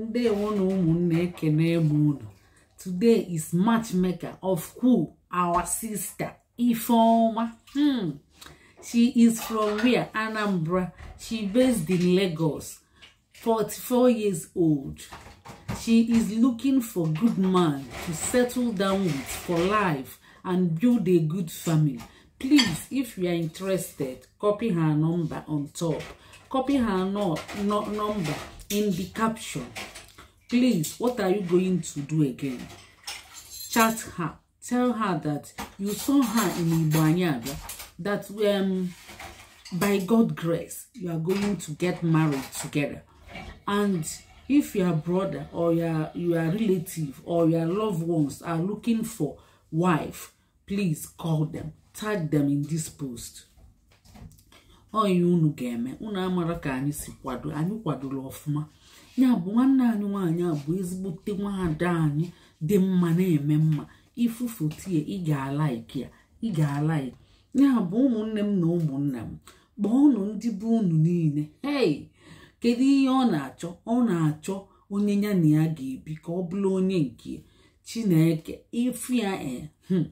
ndewo na ụmụnne ekene m unu today is matchmaker of who our sister Ifeoma hmm. she is from where Anambra she based in Lagos 44 years old she is looking for good man to settle down with for life and build a good family please if you are interested copy her number on top copy her no, no number in the caption please what are you going to do again chat her tell her that you saw her in Igbanyabia that um, by God grace you are going to get married together and if your brother or your your relative or your loved ones are looking for wife please call them tag them in this post oyi unu ga-eme unu amara ka anyị si kwado anyị kwadoro ọfụma ya bụ nwanne anyị nwaanyị a bụ ezigbote nwaada anyị dị mma na-eme mma ifufu tie ị alaiki ya ịga ga-alaiki ya bụ ụmụnne m na ụmụnna m kpọọnụ ndị bụ unu niile hei kedu ihe ọ na-achọ ọ na-achọ onye ya na ya ga-ebi ka ọ bụrụ onye nke chineke ifia e eh, hmm,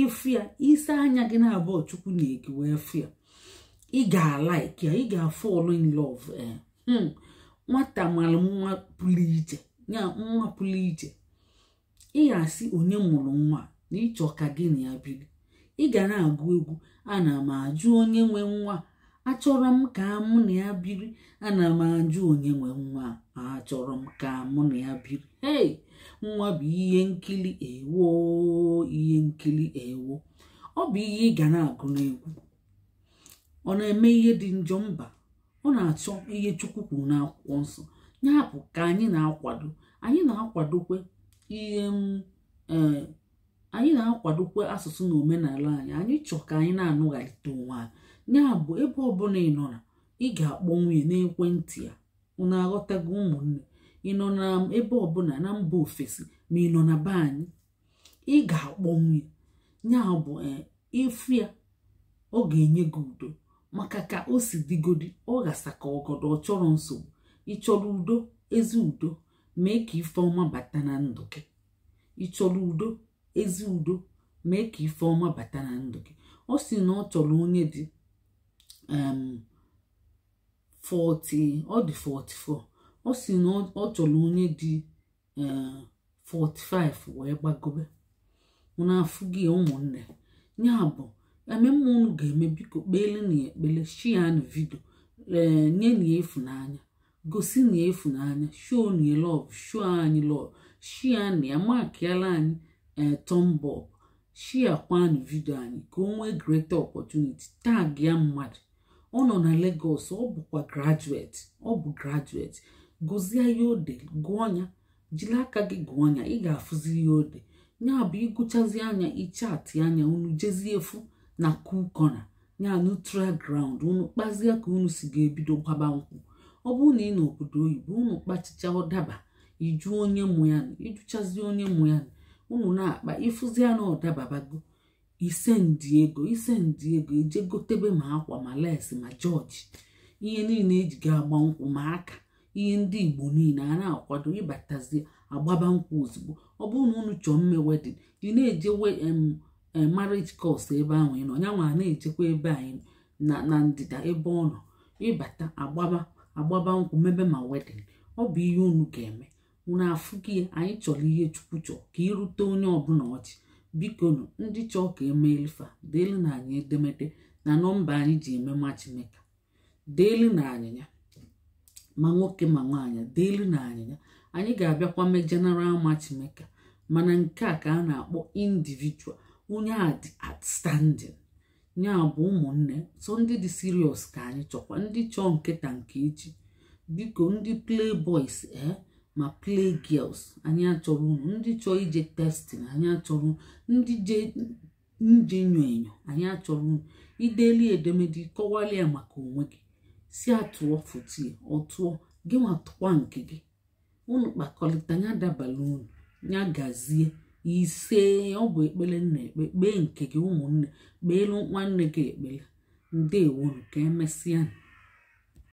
ifia isi anya gị na-abụọ chukwu na-ekewa efia ị ga-alaik ya ị ga in love hmm. nwata mara nwa pụrụ iche ya nwa pụrụ iche ị onye mụrụ nwa na ịchọ ka gị na ya biri ị ga na-agụ egwu ana m ajụ onye nwe nwa achọrọ m ka mụ na ya biri ana m ajụ onye nwe nwa achọrọ m ka mụ na ya biri hey nwa bụ ihe nkiri ewo ihe nkiri ewo ọ bụ ihe ị ga na-agụ n'egwu ọ na-eme ihe dị njọ mba ọ na-achọ ihe chukwu kwuru n'akwụkwọ nsọ ya bụ ka anyị na-akwado anyị na-akwadokwe ihe mm, e, anyị na-akwadokwe asụsụ na omenala anyị anyị chọọ ka anyị na-anụghalite onwe anyị ya bụ ebe ọbụla ị nọ na ị ga-akpọ nwunye n'ekwentị ya unu aghọtago ụmụnne ị nọ na ebe ọbụla na mba ofesi ma ị nọ na be anyị ị ga-akpọ nwunye nyabụ bụ e, ịfụ ya ọ ga-enye gị udo maka ka o si digodi ọ gasa ka ọgọdọ ọ chọrọ nsogbu ịchọrọ udo ezi udo mee ka ife bata na ndụ gị ịchọrọ udo ezi udo mee ka ife ọma bata na ndụ gị ọ si na ọ chọrọ onye dị 40 um, ọ dị 44 ọ si na ọ chọrọ onye dị 45 um, wee gbagobe na afụ gị ụmụnne ya bụ ememme unu ga-eme biko kpeelena ya ekpele shian vidio ee nye na ịfụnanya gosi na ya ịfụnanya shoo na lọv shoo anyị lọv shian ya makiala anyị ee tọmbọb shia kwanụ vidio anyị ka o nwee greta opportunity tag ya mmadụ ọ nọ na Lagos ọ bụkwa graduate ọ bụ graduate gozie ya ode gụọ ya jiri aka gị gụọ ya ị ga-afụzi ya ode ya bụ ịgụchazi anya ichaatị anya unu jezie efu na cool corner ya neutral ground unu kpazie ka unu si ga-ebido gwaba nkwụ ọ bụrụ na ị na obodo oyibo unu kpachicha ọdaba iju onye mụ ya ijuchazie onye mụ ya unu na-akpa ịfụzia na ọdababago ise ndị ego ise ndị ego eje gotebe ma akwa ma lesi ma jọji ihe niile eji ga-agba nkwụ ma aka ihe ndị igbo niile a na-akwado ịbatazie agbaba nkwụ ozugbo ọ bụrụ na unu chọọ mme wedin ị na-eje Eh, marriage cost ebe ahụ ị nọ nyanwa na-echekwa ebe anyị na ndịda ebe ọ nọ ịbata agbaba agbaba nkwụ mebe ma wedin ọ bụ ihe unu ga-eme unu afụ gị ya anyị chọrọ ihe chukwu chọọ ka irute onye ọbụla ọchị bikonu ndị chọọ ka emeelifa deelu na anyị edemede na nọmba anyị ji eme ma chineke deelu na anyịnya ma nwoke ma nwaanyị deelu na anyịnya anyị ga-abịakwa mee general ma chineke mana nke a ka a na-akpọ indivijual. onye a dị outstanding ya bụ ụmụnne so ndị dị sirios ka anyị chọkwa ndị chọọ nkịta nke echi biko ndị play boys ee eh, ma play girls anyị achọrọ unu ndị chọọ ije testin anyị achọrọ ndị je nje enyo enyo anyị achọrọ unu ideli edemede kọwalịa maka onwe gị si atụọ fotie ọtụọ gị nwa tụkwa nke gị unu kpakọlịta ya dabala unu ya gazie ise ọ bụ ekpere nna ekpe kpee nke gị ụmụnne kpeelu nwanne gị ekpele ndewonu ka emesịa